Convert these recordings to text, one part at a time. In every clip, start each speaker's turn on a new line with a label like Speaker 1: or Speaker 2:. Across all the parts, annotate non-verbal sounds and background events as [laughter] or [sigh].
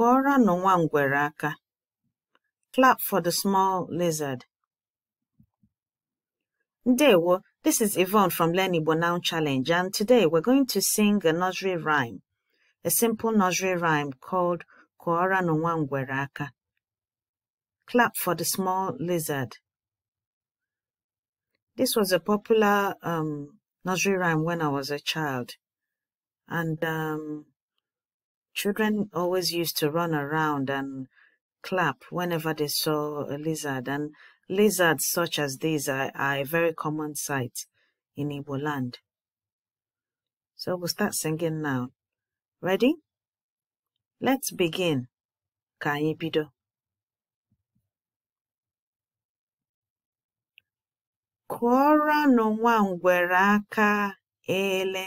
Speaker 1: Kuara nụ nwa ngwere aka. Clap for the small lizard. Ndewo, this is Yvonne from Learn Igbo Now Challenge and today we're going to sing a nursery rhyme, a simple nursery rhyme called Kuara nụ nwa ngwere aka. Clap for the small lizard. This was a popular um, nursery rhyme when I was a child and um, Children always used to run around and clap whenever they saw a lizard, and lizards such as these are, are a very common sight in Igbo land. So we'll start singing now. Ready? Let's begin. Ka anyị no Kụọrọnụ nwa ngwere aka ele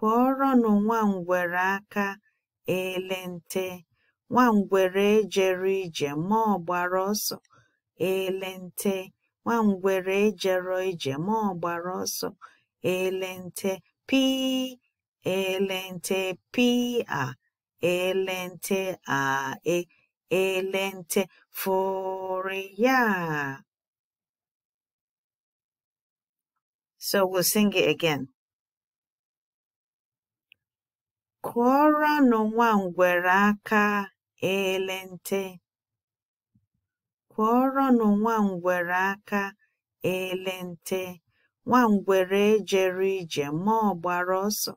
Speaker 1: Kụọrọnụ nwangwere aka elente nte, nwangwere ije ma ọ gbara ọsọ elente nte, nwangwere ije ma ọ gbara ọsọ elente nte elente ele nte pịa ele nte ae ele nte So we'll sing it again. Kụọrọnụ nwangwere aka ele nte. Kụọrọnụ nwangwere aka ele nte. Nwangwere ejero ije ma ọ gbara ọsọ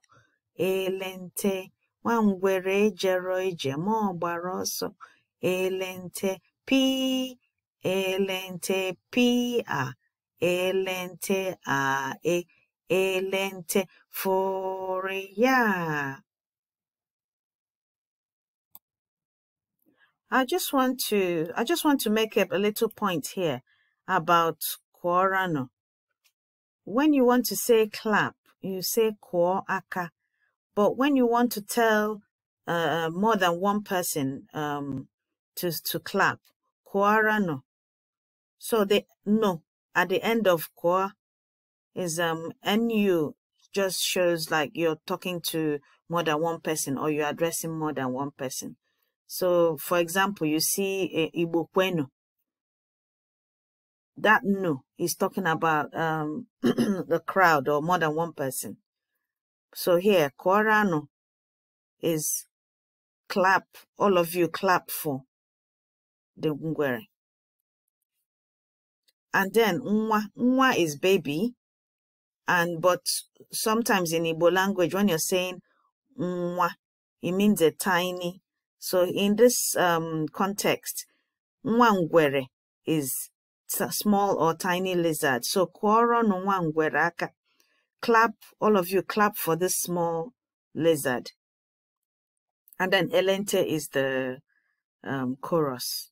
Speaker 1: ele nte. Nwangwere ejero ije ma ọ gbara ọsọ ele nte. Pịị ele nte a ele nte ele nte I just want to I just want to make up a little point here about kworano. When you want to say clap, you say kwo aka. But when you want to tell uh, uh, more than one person um, to to clap, kworano. So the no at the end of kwa is um nu just shows like you're talking to more than one person or you're addressing more than one person. So, for example, you see uh, eh, Igbokwenu. That no is talking about um, [clears throat] the crowd or more than one person. So here, Korano is clap, all of you clap for the Ngwere. And then Nwa, Nwa is baby. And but sometimes in Igbo language, when you're saying Nwa, it means a tiny so in this um, context, nwangwere is small or tiny lizard. So kworo nwangwere aka. Clap, all of you clap for this small lizard. And then elente is the um, chorus.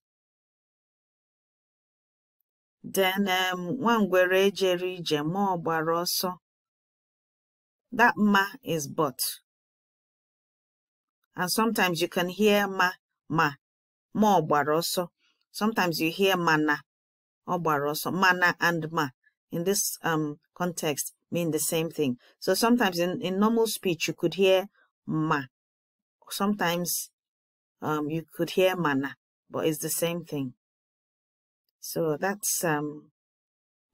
Speaker 2: Then um, nwangwere ejere That ma is but
Speaker 1: and sometimes you can hear ma ma ma ọ sometimes you hear mana or gbara mana and ma in this um, context mean the same thing so sometimes in, in normal speech you could hear ma sometimes um, you could hear mana but it's the same thing so that's um,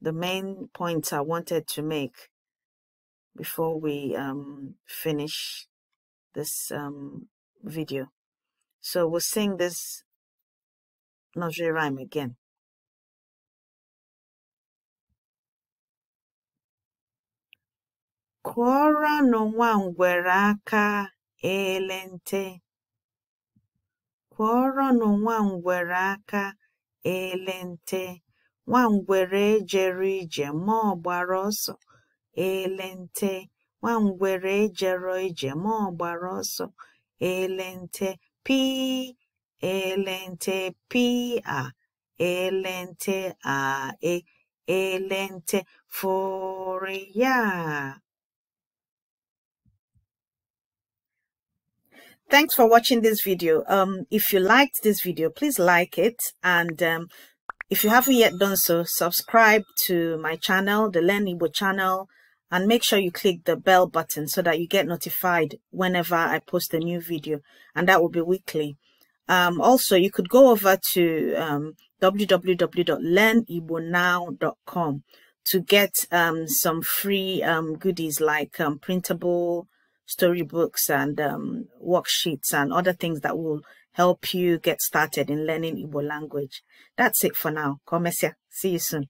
Speaker 1: the main points I wanted to make before we um, finish this um, video. So we'll sing this
Speaker 2: nursery rhyme again.
Speaker 1: aka ele nte. nwa ngwere aka ele ngwere ejere ije ma ọ ọsọ ije ma ọsọ elente p elente p a elente a e elente foria. Thanks for watching this video. Um, if you liked this video, please like it. And um, if you haven't yet done so, subscribe to my channel, the Learn Igbo channel and make sure you click the bell button so that you get notified whenever I post a new video and that will be weekly. Um, also, you could go over to um, www.learnibonow.com to get um, some free um, goodies like um, printable storybooks and um, worksheets and other things that will help you get started in learning Igbo language. That's it for now. Komesia. See you soon.